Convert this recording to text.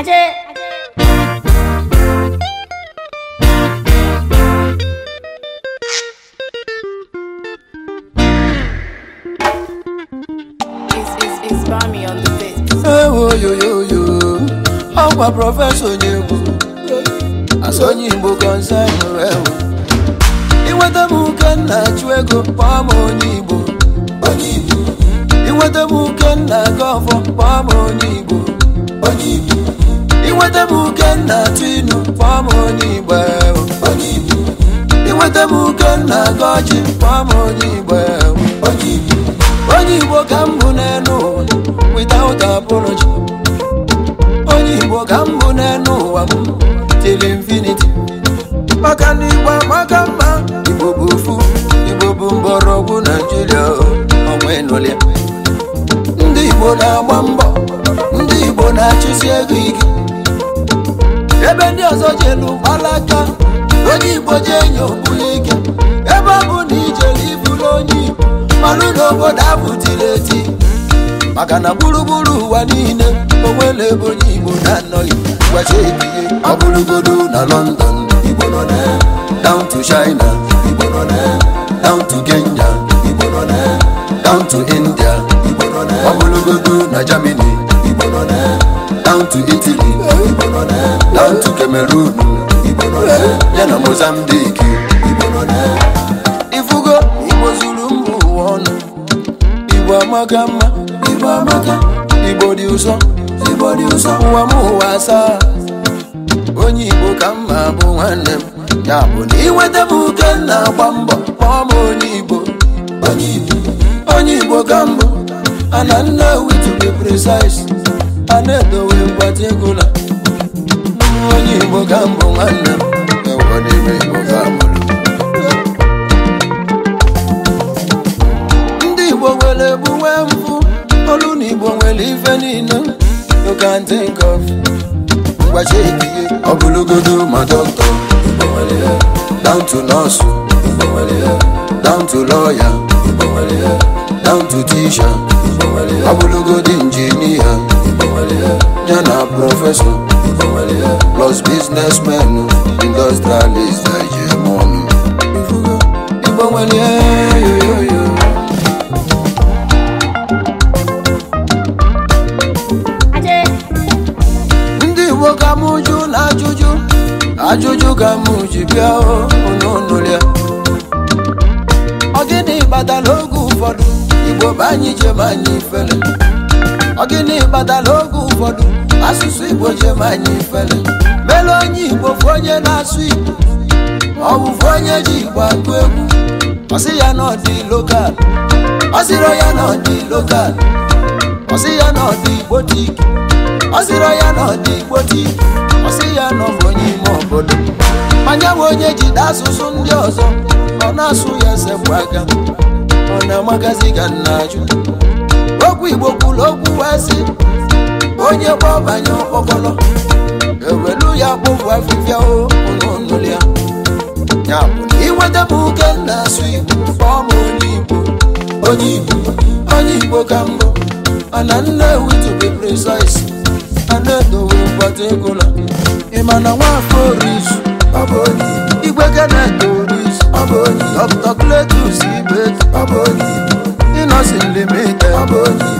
આજે ọkwa prọfesọ onye egwu asụ onye igbo kọnsa nwere ewu inweta m ụka nna chụ ego kpọọ m inweta m Ukenna Tinu kpọọ m onye Igbo inweta m Ukenna Goji kpọọ m onye Igbo onye Igbo ka m bụ n'elu ụwa without apology onye Igbo ka m bụ n'elu ụwa m till infinity maka na Igbo amaka mma Igbo bụ ofu Igbo bụ mgbọrọgwụ Naijiria ọnwa enụlịa ndị Igbo na-agba mbọ ndị Igbo na-achụsi ego ike ebe ndị ọzọ jelu gbalaga onye igbo ji enye ogbuli ike ebe ọ bụ na ijele iburu onye igbo malụ na obodo ahụ eti maka na gburugburu ụwa niile onwe na ebe onye igbo na-anọghị gwacha ebihe ọ bụrụgodo na lọndọn igbo nọ na down to China igbo nọ na down to Kenya igbo nọ na down to India igbo nọ na ọ bụrụgodo na Germany down to Cameroon, ya na Mozambique. Ifugo Igbo zuru mba ụwa ọnụ Igbo amaka mma Igbo amaka Igbo dị ụzọ. Igbo dị ụzọ. ụwa m ụwa asaa onye Igbo ka mma bụ nwanne m ya bụ na iweta m uke na-agba mbọ kpọọ m onye Igbo onye Igbo ka mbụ ana nna witu be precise ana edowe mgbatị egwu na igbo ka mbụ nwanne m ewo n'ime igbo ka mụrụ ndị igbo nwere egbu nwee mfụ olu na igbo nwere ife niile you ndị nke of ngwachi ekiye ọbụlụgodo ma dọkịta igbo nwere ya down to nọọsụ igbo nwere ya down to lọya igbo nwere ya down to tisha ọbụlụgodo injinia igbo nwere ya ya na prọfesọ plus biznesmen industrialist na ọnụ ndị igbo ka m jụ na ajụjụ ajụjụ ka m ji bịa n'ụlọ ya ọ gịnị kpatara oge ụfọdụ igbo bụ anyị jem anyị ifere ọ gịnị kpatara oge ụfọdụ asụsụ igbo jem anyị ifele mele onye igbo fu onye na-asụ igbo ọ bụfụ onye ji igbo agụ egwu ọsị ya na ọdị lokal ọsịrọ ya na ọdị lokal ọsị ya na ọdị igbo tiki ọsịrọ ya na ọdị igbo tiki ọsị ya na ọbụ onye ime obodo manya bụ onye jide asụsụ ndị ọzọ ọ na-asụ ya sekwu aka ọ na-amagazi ga nna ajụ okwu igbo kwuru okwu wee sị onye gbabanye ọkpọkọlọ ewelu ya kpụpụ afịfịa ụlọnụlịa ya bụ na m oke na-asụ igbo kpọọ onye igbo onye igbo onye igbo ka mbụ mana nne to be precise ana edowe mgbata ego na ịmana nwafọ orizu ọ bụ onye igwe ga na-edo orizu ọ kletus ibe ọ bụ ịnọsi limite ọ bụ onye